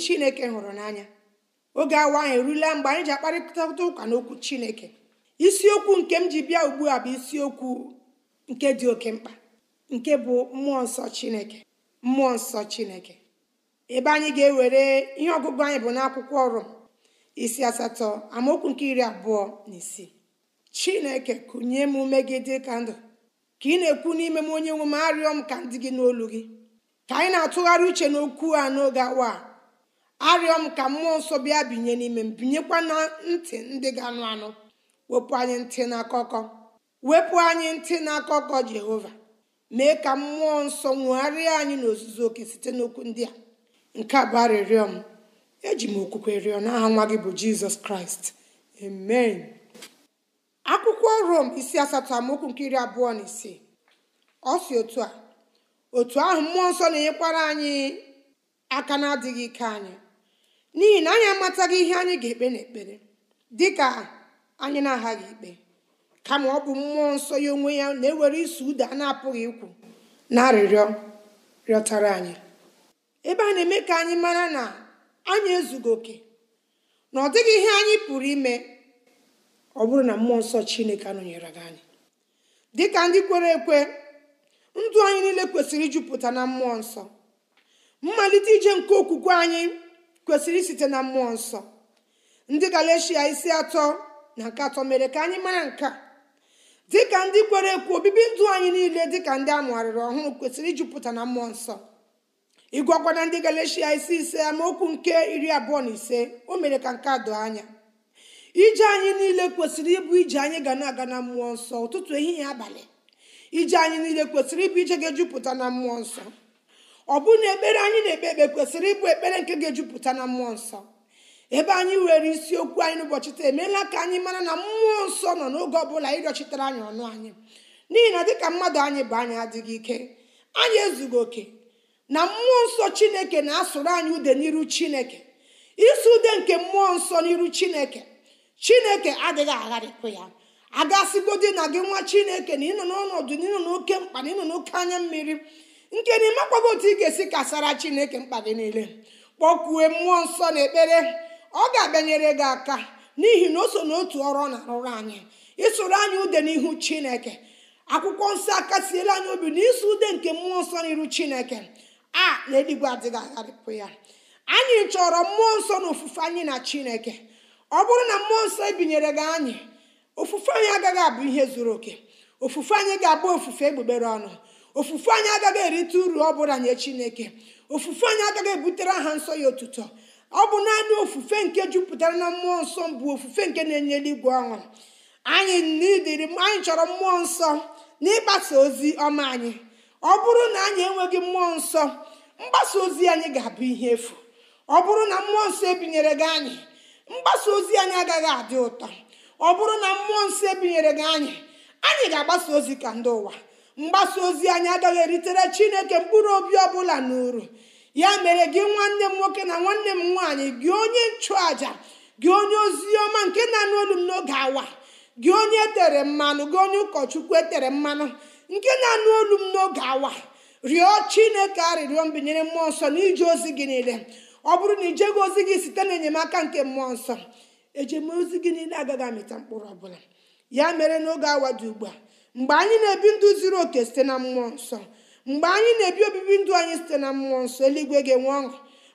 chineke hụrụ n'anya oge awa anyị erula mgbe anyị ji akparịta ụka n'okwu chineke isiokwu nke m ji bịa ugbu a bụ isiokwu nke dị oke mkpa nke bụ mmụọ nsọ chineke mmụọ nsọ chineke ebe anyị ga-ewere ihe ọgụgụ anyị bụ n'akwụkwọ ọrụ isi asatọ amaokwu nke iri abụọ na isii chineke kụnye m ume gị dị ka ndụ ka ị na-ekwu n'ime m onye nwe m arịọ m ka ndị gị n'olu gị ka anyị na-atụgharị uche n'okwu a n'oge awa a arịọ m ka mmụọ nsọ bịa binye n'ime m binyekwa na ntị ndị ga-anụ anụ wepụ anyị ntị n'akụkọ wepụ anyị ntị n'akụkọ jehova mee ka mmụọ nsọ nwegharịa anyị n'ozuzu oke site n'okwu ndị a nke a bụ arịrịọ m eji m okwukwe rịọ n'aha nwa gị bụ jizọs kraịst amen akwụkwọ rom isi asatọ amaokwu nke iri abụọ na ise. ọ si otu a otu ahụ mmụọ nsọ na-enyekwara anyị aka na-adịghị ike anyị n'ihi na anyị amataghị ihe anyị ga-ekpe n'ekpere dị ka anyị na-aghaghị ikpe kama ọ bụ mmụọ nsọ ya onwe ya na-ewere iso ụda a na-apụghị ikwu na arịrịọ rịọtara anyị ebe a na-eme ka anyị mara na anyị ezughị oke na ọ dịghị ihe anyị pụrụ ime ọ bụrụ na mmụọ nsọ chineke anọnyere gị anyị dịka ndị kwere ekwe ndụ anyị niile kwesịrị ijupụta na mmụọ nsọ mmalite ije nke okwukwe anyị kwesịrị isite na mmụọ nsọ ndị galeshia isi atọ na nke atọ mere ka anyị mara nka dịka ndị kwere ekwu obibi ndụ anyị niile dịka ndị amụgharịrị ọhụrụ kwesịrị ijupụta na mmụọ nsọ ịgwakwana ndị galecia isi ise amaokwu nke iri abụọ na ise o mere ka nke a doo anya ije anyị niile kwesịrị ịbụ ije anyị ga na-aga na mmụọ nsọ ụtụtụ ehihie abalị ije anyị niile kwesịrị ịbụ ije ga-ejupụta na mmụọ nsọ ọ bụ na ekpere anyị na-ekpe ekpe kwesịrị ịbụ ekpere nke ga-ejupụta na mmụọ nsọ ebe anyị were isiokwu anyị n'ụbọchị taa emeela ka anyị mara na mmụọ nsọ nọ n'oge ọbụla ịrịọchitere anyị ọnụ anyị n'ihi na dịka mmadụ anyị bụ anyị adịghị ike anyị ezughị oke na mmụọ nsọ chineke na-asụrụ anyị ude n'iru chineke isi ude nke mmụọ nsọ n'iru chineke chineke adịghị agharịpụ ya agasịgodi na gị nwa chineke na ịnọ n'ọnọdụ na ịnọ n'oke mkpa na ịnọ n'oke anya mmiri nke na ịmakwago otu ị ga-esi kasara chineke mkpa gị niile kpọkwue mmụọ nsọ na ekpere ọ ga-abịanyere gị aka n'ihi na o so n'otu ọrụ ọ na-arụrụ anyị ịsụrụ anyị ude n'ihu chineke akwụkwọ nsọ akasiela anyị obi na ịsụ ude nke mmụọ nsọ n'iru chineke a na eluigwe adịghị agharịpụ ya anyị chọrọ mmụọ nsọ na ofufe anyị na chineke ọ bụrụ na mmụọ nsọ ebinyere gị anyị ofufe anyị agaghị abụ ihe zuru oke ofufe anyị ga-abụ ofufe egbugbere ọnụ ofufe anyị agaghị erite uru ọ bụla nye chineke ofufe anyị agaghị ebutere aha nsọ ya otuto ọ bụ naanị ofufe nke jupụtara na mmụọ nsọ bụ ofufe nke na-enye eluigwe ọṅụ anyị n'idiri anyị chọrọ mmụọ nsọ n'ịgbasa ozi ọma anyị ọ bụrụ na anyị enweghị mmụọ nsọ mgbasa ozi anyị ga-abụ ihe efu ọ bụrụ na mmụọ nsọ ebinyere gị anyị mgbasa ozi anyị agaghị adị ụtọ ọ bụrụ na mmụọ nsọ ebinyere gị anyị anyị ga-agbasa ozi ka ndị ụwa mgbasa ozi anyị agaghị eritere chineke mkpụrụ obi ọbụla n'uru ya mere gị nwanne m nwoke na nwanne m nwaanyị gị onye nchụaja gị onye ozi ọma nke na-anụ olu m n'oge awa gị onye etere mmanụ gị onye ụkọchukwu etere mmanụ nke na-anụ olu m n'oge awa rịọ chineke arịrịọ mbinyere mmụọ nsọ n'ije ozi gị niile ọ bụrụ na ijeghị ozi gị site n'enyemaka nke mmụọ nsọ ejemozi gị niile agaghị amịta mkpụrụ ọbụla ya mere n'oge awa dị ugbu a mgbe anyị na-ebi ndụ zuru oke site na mmụọ nsọ mgbe anyị na-ebi obibi ndụ anyị site na mmụọ nsọ eluigwe ga-enwe ọṅụ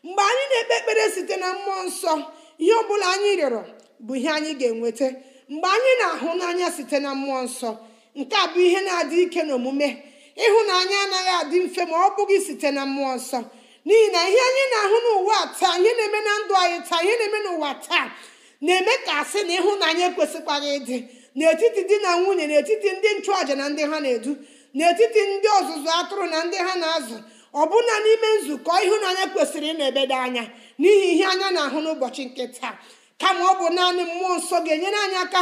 mgbe anyị na-ekpe ekpere site na mmụọ nsọ ihe ọ bụla anyị rịọrọ bụ ihe anyị ga-enweta mgbe anyị na-ahụ n'anya site na mmụọ nsọ nke a bụ ihe na-adị ike n'omume ịhụnanya anaghị adị mfe ma ọ bụghị site na mmụọ nsọ n'ihi na ihe anyị na-ahụ n'ụwa taa ihe na-eme na ndụ anyị taa ihe na-eme n'ụwa taa na-eme ka asị na ịhụnanya ekwesịkwaghị ịdị n'etiti di na nwunye n'etiti ndị nchụàja na ndị ha na-edu n'etiti ndị ọzụzụ atụrụ na ndị ha na-azụ ọbụna n'ime nzukọ ịhụnanya kwesịrị ịna-ebeda anya n'ihi ihe anya na-ahụ n'ụbọchị nke taa kama ọ bụ naanị mmụọ nsọ ga-enyere anyị aka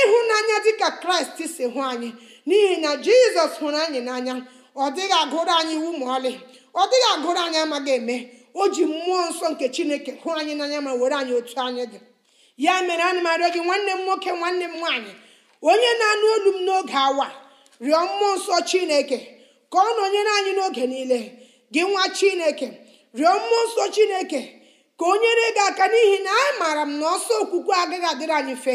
ịhụnanya dịka kraịst si hụ anyị n'ihi na jizọs hụrụ anyị n'anya ọ dịghị agụrụ anyị iwu ma ọlị ọ dịghị agụrụ anyị amaghị eme o ji mmụọ nsọ nke chineke hụ anyị n'anya ma were anyị otu anyị dị ya mere ana m gị nwanne m nwoke nwanne m nwaanyị onye na-anụ olu m n'oge awa rịọ mmụọ nsọ chineke ka ọ nọnyere anyị n'oge niile gị nwa chineke rịọ mmụọ nsọ chineke ka o nyere gị aka n'ihi na anyị maara m na ọsọ okwukwe agaghị adịrị anyị mfe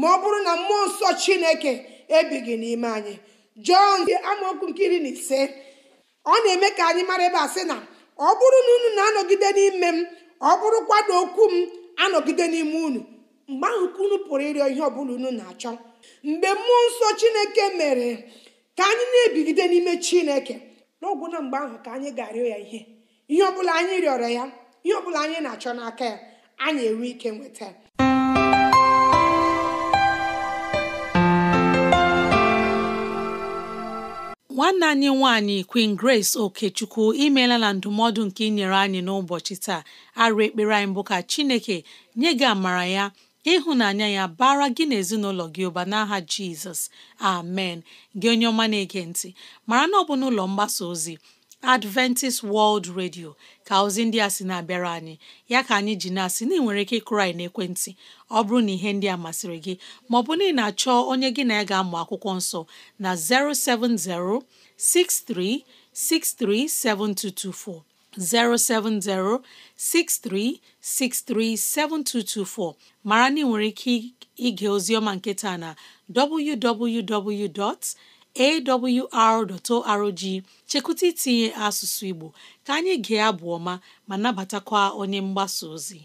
ma ọ bụrụ na mmụọ nsọ chineke ebighị n'ime anyị jọn amaokwu nke iri na ise ọ na-eme ka anyị mara ebe a sị na ọ bụrụ na unu na-anọgide n'ime m ọ bụrụkwa na okwu m anọgide n'ime unu mgbe ahụ ka unu pụrụ ịrịọ ihe ọ bụla unu na-achọ mgbe mmụọ nsọ chineke mere ka anyị na-ebigide n'ime chineke n'ọgwụ na mgbe ahụ ka anyị ga-arịọ ya ihe ihe ọbụla anyị rịọrọ ya ihe ọbụla anyị na-achọ n'aka ya anyị enwe ike nweta ya nwanne anyị nwanyị Queen Grace Okechukwu imeela na ndụmọdụ nke inyere anyị n'ụbọchị taa arụ ekpere anyị bụ ka Chineke nye gị amara ya ka ịhụnanya ya bara gị na ezinụlọ gị ụba n'aha jizọs amen gị onye ọma na-ege ntị mara na ọ bụ n'ụlọ mgbasa ozi adventist world radio ka ozi ndị a sị na-abịara anyị ya ka anyị ji na-asị na ị nwere ike ịkụrụ anyị n'ekwentị ọ bụrụ na ihe ndị a masịrị gị maọbụ na ị na-achọ onye gị na ya ga-amụ akwụkwọ nsọ na 070 6363 7224 070 7224 mara na ị nwere ike ige ozioma nketa na www.awr.org chekwụta itinye asụsụ Igbo ka anyị gee abụ ọma ma nabatakwa onye mgbasa ozi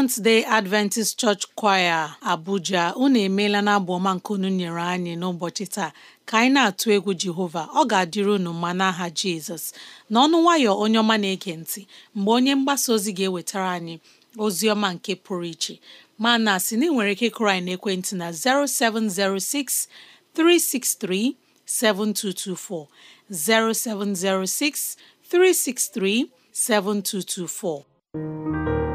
Seventh Day Adventist Church Choir Abuja unu emeela na abụ ọma nke unu nyere anyị n'ụbọchị taa ka anyị na-atụ egwu Jehova ọ ga-adịrị unu mma n'aha Jizọs n'ọnụ nwayọ onye ọma na-ege ntị mgbe onye mgbasa ozi ga-ewetara anyị ozi ọma nke pụrụ iche ma na sị na ị nwere ike kụrụ anyị n'ekwentị na 0706 363 7224 0706 363 7224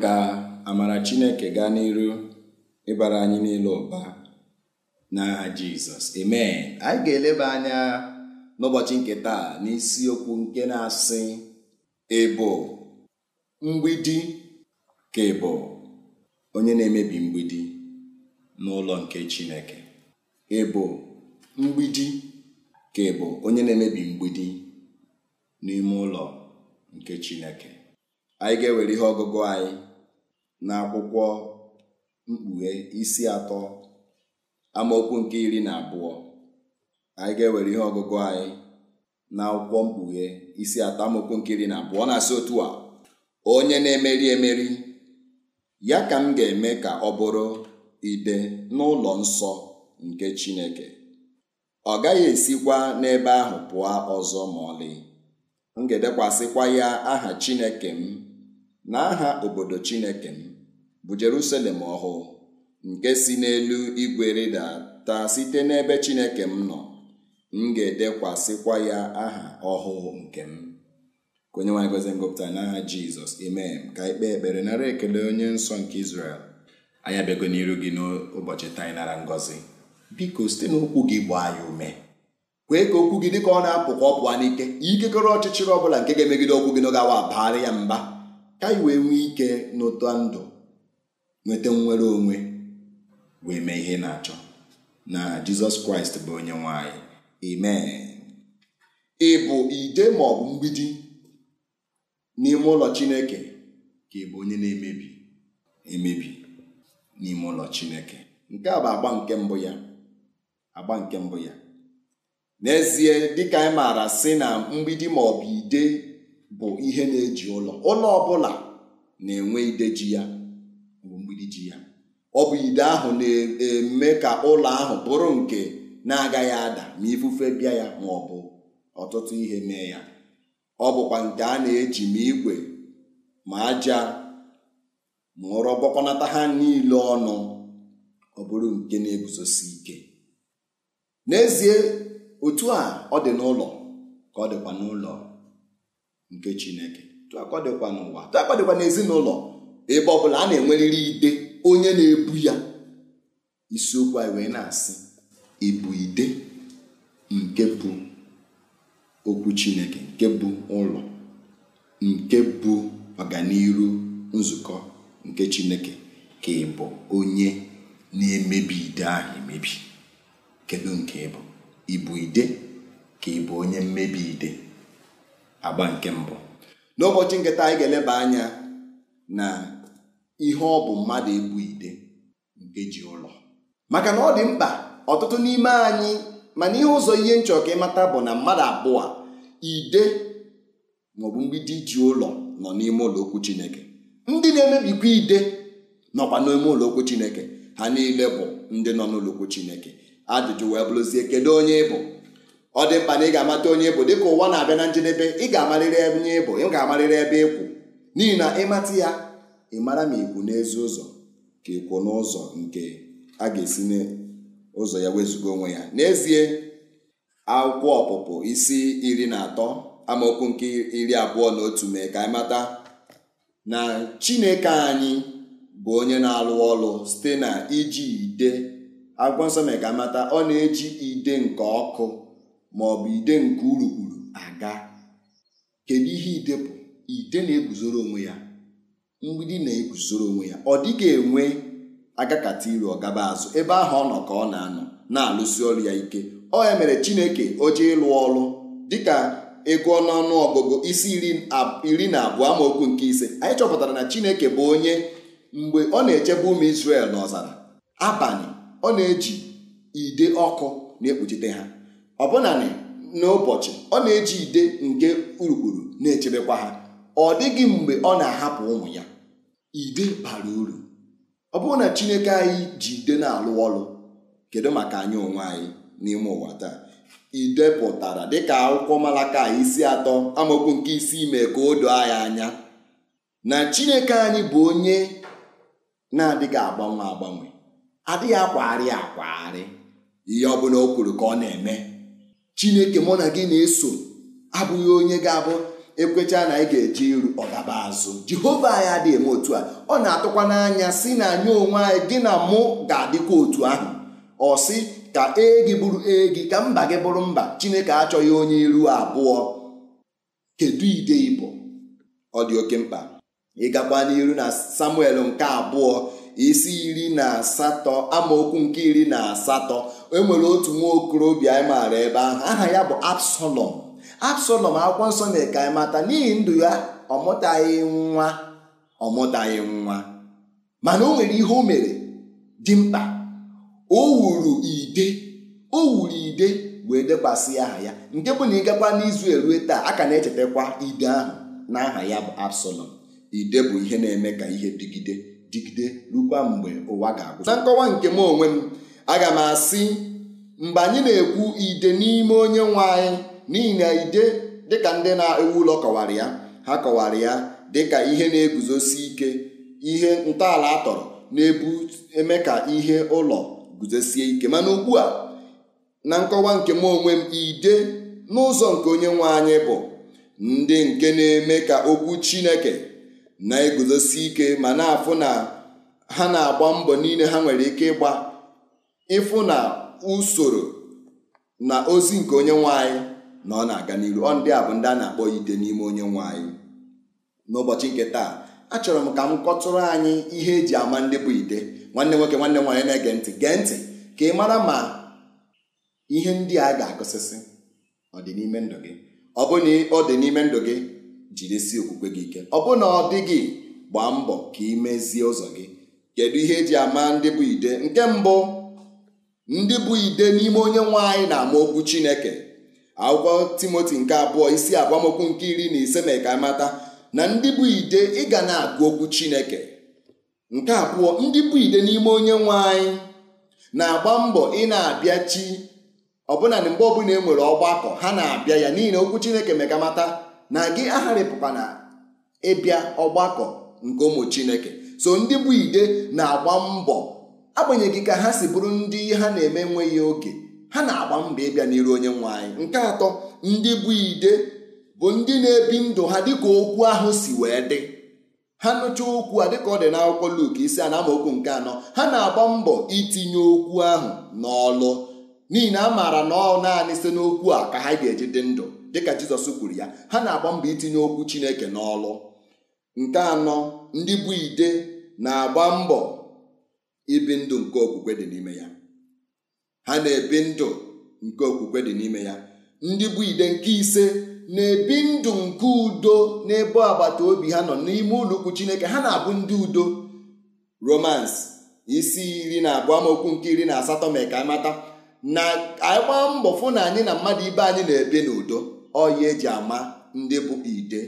ka amara Chineke gaa n'iru ịbara anyị niile ụba n'aha Jizọs amen anyị ga-eleba anya n'ụbọchị nke taa n'isiokwu nke na-asị ịbụ mgbidi ka ebo onye na-emebi mgbidi n'ụlọ nke Chineke mgbidi ka ịbụ onye na-emebi mgbidi n'ime ụlọ nke Chineke anyị ga-ewere ihe ọgụgụ anyị n'akwụkwọ mkpughe isi atọ amaokwu nke iri na abụọ anyị ga-ewere ihe ọgụgụ anyị na akwụkwọ mkpughe isi atọ amaokwu nke iri na abụọ na-asị otu a onye na-emeri emeri ya ka m ga-eme ka ọ bụrụ ide n'ụlọ nsọ nke Chineke ọ gaghị esikwa n'ebe ahụ pụọ ọzọ ma ọlị m ga-edekwasịkwa ya aha Chineke m na aha obodo Chineke m bụ Jerusalem ọhụụ nke si n'elu igwe taa site n'ebe Chineke m nọ m ga-edekwasịkwa ya aha ọhụụ nke m ka onye nwanyị gozie ngụpụta n'aha Jizọs amen ka ikpe ekpere nara ekele onye nsọ nke Izrel anyị abịago n'iru gị n'ụbọchị taa nara ngọzi biko site n'okwu gị gbaa anyị ume kwee ka okwu gị ka ọ na-apụ ka ọ pụọ n'ike ikekọrọ ọchịchịrị ọ bụla nke ga-emegide okwu gị n'oge awa baara ya mba ka anyị wee ike n'ụtọ ndụ nweta nnwere onwe wee mee ihe na-achọ na jizọs kraịst bụ onye nwanyị amen ị bụ ide ma ọ bụ mgbidi n'ime ụlọ chineke ka ị bụ onye na-emebi emebi n'ime ụlọ chineke nke a bụ agba nke mbụ ya agba nke mbụ ya n'ezie dịka anyị maara sị na mgbidi ma ọ bụ ide bụ ihe na-eji ụlọ ụlọ ọbụla na-enwe ideji ya mgbidi ji ya ọ bụ ide ahụ na-eme ka ụlọ ahụ bụrụ nke na-agaghị ada ma ifufe bịa ya ma ọ bụ ọtụtụ ihe mee ya ọ bụkwa nke a na-eji ma igwe ma aja ma ụrọ gbakọnata ha niile ọnụ ọ bụrụ nke na-eguzosi ike n'ezie otu a ọ dị n'ụlọ ka ọ dịkwa n'ụlọ nke chineke dịkwa n'ụwa dịkwa n'ezinụlọ ebe ọ bụla a na enweriri ide onye na-ebu ya isiokwu anyị wee na-asị ịbụ ide nke bụ okwu chineke nke bụ ụlọ nke bụ ọganiru nzukọ nke chineke ka ịbụ onye na-emebi ide ahụ emebi kedu nke ịbụ ịbụ ide ka ịbụ onye mmebi ide agba nke mbụ n'ụbọchị nketa anyị ga-eleba anya na ihe ọ bụ mmadụ ebu ide nke ji ụlọ maka na ọ dị mkpa ọtụtụ n'ime anyị mana ihe ụzọ ihe nchọ ka ịmata bụ na mmadụ abụọ ide maọbụ mgbidi ji ụlọ nọ n'ime ụlọ okwu Chineke ndị na-emebikwa ide nọkwa n'ime ụlọ okwu Chineke ha niile bụ ndị nọ n'ụlọ okwu Chineke ajụjụ wee bụrụzie kedu onye ị bụ ọ dị mkpa na ị ga-amata onye bụ dịka ụwa na-abịa na njedebe ị ga-amarịrị onye ịbụ ị ga-amarịrị ebe ịkwụ e n'ihi na ịmata ya ị mara ma ikwu n'ezi ụzọ ka ikwu n'ụzọ nke a ga-esi n'ụzọ ya wezugo onwe ya n'ezie akwụkwọ ọpụpụ isi iri na atọ amaokwu nke iri abụọ na otu mee ka anyị na Chineke anyị bụ onye na-alụ ọlụ site na iji ide akwụkwọ nsọ mee ka mata ọ na-eji ide nke ọkụ ma ọ bụ ide nke urukpuru aga kedu ihe idepụ ide na-eguzoro onwe ya mgbidi na-eguzoro onwe ya ọ dịghị enwe agakata iru ọgaba azụ ebe ahụ ọ nọ ka ọ na-anọ na-alụsi ọrụ ya ike ọ ya mere chineke oje ịlụ ọrụ dịka ego ọnụọnụ ọgụgụ isi iri na abụọ amaokwu nke ise anyị chọpụtara na chineke bụ onye mgbe ọ na-echebe ụmụ Israel n'ọzara abalị ọ na-eji ide ọkụ na-ekpuchite ha ọbụna n'ụbọchị ọ na-eji ide nke urukpuru na-echebekwa ha ọ dịghị mgbe ọ na-ahapụ ụmụ ya ide bara uru ọ bụrụ na chineke anyị ji ide na-alụ ọrụ kedu maka anyị onwe anyị n'ime ụwa taa ide pụtara dịka akwụkwọ malaka isi atọ amaokwu nke isi ime ka o doo anyị anya na chineke anyị bụ onye na-adịghị agbanwe agbanwe adịghị akwagharị akwagharị ihe ọ bụla o kwuru ka ọ na-eme chineke mụ na gị na-eso abụghị onye ga-abụ ekwecha na anyị ga-eje iru ọgaba azụ jehova anyị adịghị eme otu a ọ na-atụkwa n'anya si na anyị onwe anyị gị na mụ ga-adịkwa otu ahụ ọ sị ka ee gị bụrụ ee gị ka mba gị bụrụ mba chineke achọghị onye iru abụọ kedu ide ibo ọ dị oke mkpa ịgakwa n'iru na samuel nke abụọ isi iri na asatọ amaokwu nke iri na asatọ enwere otu nwa okorobịa anyị maara ebe ahụ aha ya bụ Absalọm Absalọm akwụkwọ nsọ mere ka anyị mata n'ihi ndụ ya ọ mụtaghị nwa ọ mụtaghị nwa mana o nwere ihe o mere dị mkpa o wuru ide o wuru ide wee dekwasị aha ya nke bụ na ịgakwa n'izu erue taa a ka na-echetakwa ide ahụ na aha ya bụ Absalọm ide bụ ihe na-eme ka ihe dịgide dịgide rukwa mgbe ụwa ga-agwụ na nkọwa nke m onwe m aga m asị mgbe anyị na-ekwu ide n'ime onye nwe anyị n'ihi na ide dịka ndị na-ewu ụlọ kọwara ya ha kọwara ya dịka ihe na-eguzosi ike ihe ntọala atọrọ na-ebu eme ka ihe ụlọ guzosie ike mana ugbu a na nkọwa nke m onwe m ide n'ụzọ nke onye nwe anyị bụ ndị nke na-eme ka okwu Chineke na-eguzosi ike ma na-afụ na ha na-agba mbọ niile ha nwere ike ịgba ịfụ na usoro na ozi nke onye nwanyị na ọ na-aga n'iru ọ ndị a bụ ndị a na-akpọ ide n'ime onye nwanyị n'ụbọchị nke taa achọrọ m ka m kọtụrụ anyị ihe eji ama ndị bụ ide nwanne nwoke nwanne nwaanyị na-ege ntị gee ntị ka ị mara ma ihe ndị a ga-agụsịsị ọ dị n'ime ndụ gị ọ bụ na ọ dị n'ime ndụ gị jirisi okwukwe gị ike ọ bụ na ọ dị gị gbaa mbọ ka ị mezie ụzọ gị kedu ihe eji ama ndị bụ ide nke mbụ ndị bụ ide n'ime onye nwe anyị na-ama okwu chineke akwụkwọ timoti nke abụọ isi agbamokwu nke iri na ise na mata na ndị bụ ide ịga na-agụ okwu chineke nke abụọ ndị bụ ide n'ime onye nwe anyị na-agba mbọ ị na chi ọbụna na mgbe ọbụla e nwere ọgbakọ ha na-abịa ya n'ihi na okwu chineke megamata na gị agharịpụkwa na ịbịa ọgbakọ nke ụmụ chineke so ndị bụ ide na-agba mbọ agbanyeghị ka ha si bụrụ ndị ha na-eme enweghị oge ha na-agba mbọ ịbịa n'iru onye nwe anyị nke atọ ndị bụ ide bụ ndị na-ebi ndụ ha dịka okwu ahụ si wee dị ha nụchaa okwu a dịka ọ dị n'akwụkwọ Luk isi a na nke anọ ha na-agba mbọ itinye okwu ahụ n'ọlụ n'ihi na a maara na ọ naanị site n'okwu a ka ha ga-eji dị ndụ dịka Jizọs kwuru ya ha na-agba mbọ itinye okwu Chineke n'ọlụ nke anọ ndị bụ ide na-agba mbọ ibi ndụ nke okwukwe dị n'ime ya ha na-ebi ndụ nke okwukwe dị n'ime ya ndị bụ ide nke ise na-ebi ndụ nke udo n'ebe agbata obi ha nọ n'ime ụlọ Chineke ha na-abụ ndị udo Romans isi iri na abụọ amaokwu nke iri na asatọ mee ka amata na anyị mbọ fụ na anyị na mmadụ ibe anyị na-ebi n'udo ọya eji ama ndị bụ ide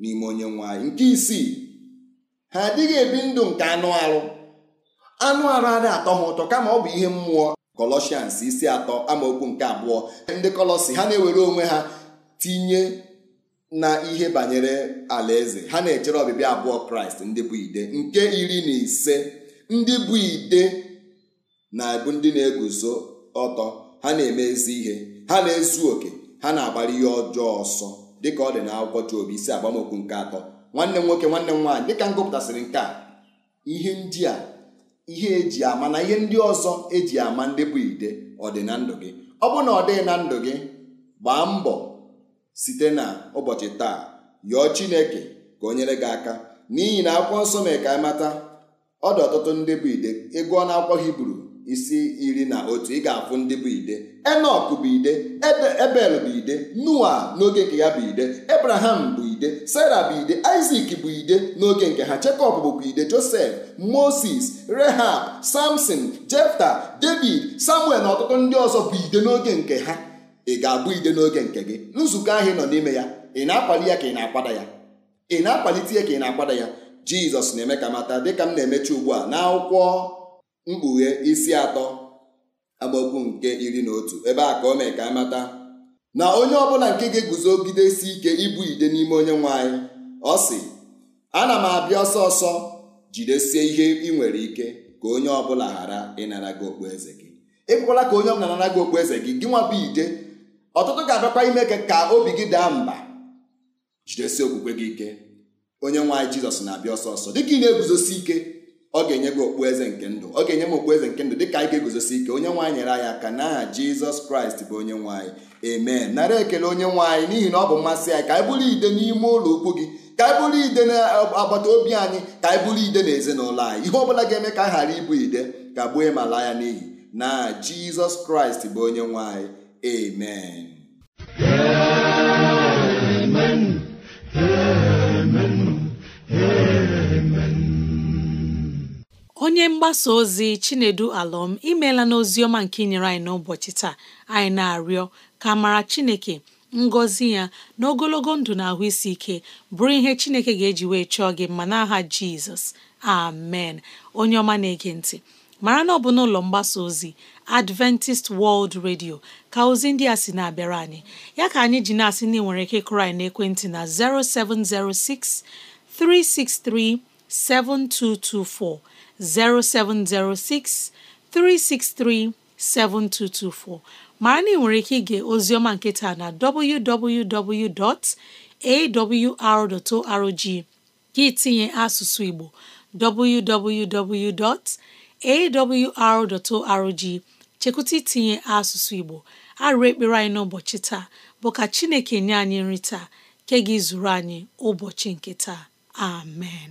n'ime onye nwanyị. nke isii ha adịghị ebi ndụ nke anụ arụ anụ arụ adị atọ ha ụtọ kama ọ bụ ihe mmụọ Kọlọsians isi atọ amaokwu nke abụọ ndị Kọlọsi ha na-ewere onwe ha tinye na ihe banyere alaeze ha na-echere ọbịbịa abụọ kraịst ndị bụ ide nke iri na ise ndị bụ ide na-abụ ndị na-eguzo ọtọ ha na-eme ezi ihe ha na-ezu oke ha na-agbara ihe ọjọọ ọsọ dịka ọ dị na akwụkwọ Job isi agbamokwu nke atọ nwanne m nwoke nwanne m nwaanyị dịka m gụpụtasịrị nke a ihe ndị a ihe eji ama na ihe ndị ọzọ eji ama ndị bụ ide ọ dị na ndụ gị ọ bụ na ọ dịghị na ndụ gị gbaa mbọ site na ụbọchị taa yọọ Chineke ka o nyere gị aka n'ihi na akwụkwọ nsọ mee ka mata ọ dị ọtụtụ ndị bụ ide ego na akwụkwọ Hibru isi iri na otu ị ga-afụ ndị bụ ide enok bụ ide ebel bụ ide noa n'oge nke ya bụ ide ebraham bụ ide sara bụ ide isak bụ ide n'oge nke ha jekọb bụkwa ide josef moses rehab samson jefta david samuel na ọtụtụ ndị ọzọ bụ ide n'oge nke ha ị ga-abụ ide n'oge nke gị nzukọ ahụ ị nọ n'ime ya ị na-akwali ya ka ị na-akwada ya ị na-akwalite ya ka ị na-akwada ya jizọs na-eme ka mata dịka m na-emechi ugbu a n'akwụkwọ mkpughe isi atọ amaokwu nke iri na otu ebe a ka o mee ka amata na onye ọbụla nke ga-eguzogidesi ike ibu ide n'ime onye nwe anyị ọ sị ana m abịa ọsọ ọsọ jidesie ihe ị nwere ike ka onye ọbụla ghara ịnara gị eze gị ekwekwala ka onye ọbụla nara gị eze gị gị nwa ide ọtụtụ ga-abịakwa ime ka obi gị daa mba jidesie okwukwe gị ike onye nwe anyị jizọs na-abịa ọsọ ọsọ dịka ị na-eguzosi ike ọ ga-enye gị okpueze nke ndụ ọ ga-enye m okpueze nke ndụ dịka anyị ga-eguzosi ike onye nwaanyị nyere anyị aka n'aha jizọs kraịst bụ onye nwaanyị amen nara ekele onye nwaanyị n'ihi na ọ bụ mmasị anyị ka anyị bụrụ ide n'ime ụlọ ukwu gị ka anyị bụrụ ide n'agbata obi anyị ka anyị bụrụ ide n'ezinụlọ anyị ihe ọbụla ga-eme ka a ghara ịbụ ide ka gbuo ịmala ya n'ihi na jizọs kraịst bụ onye nwaanyị emen onye mgbasa ozi Chinedu Alọm imeela n'ozi ọma nke inyere anyị n'ụbọchị taa anyị na-arịọ ka mara Chineke ngọzi ya na ogologo ndụ na ahụ isi ike bụrụ ihe Chineke ga-eji wee chọọ gị mma n'aha Jizọs amen onye ọma na-ege ntị mara na ọ bụ n'ụlọ mgbasa ozi Adventist World Radio ka ozi ndị a sị na-abịara anyị ya ka anyị ji na-asị na ị nwere ike kụrụ anyị n'ekwentị na 0706 363 7224 0706 363 7224 mara na ị nwere ike ige ozioma nke taa na www.awr.org gị tinye asụsụ Igbo www.awr.org chekwụta itinye asụsụ Igbo arụ ekpere anyị n'ụbọchị taa bụ ka Chineke nye anyị nri taa ke gị zuru anyị ụbọchị nke taa amen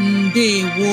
ndewo